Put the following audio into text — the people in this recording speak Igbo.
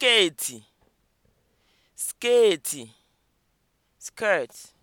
skeeti skeeti (skirt)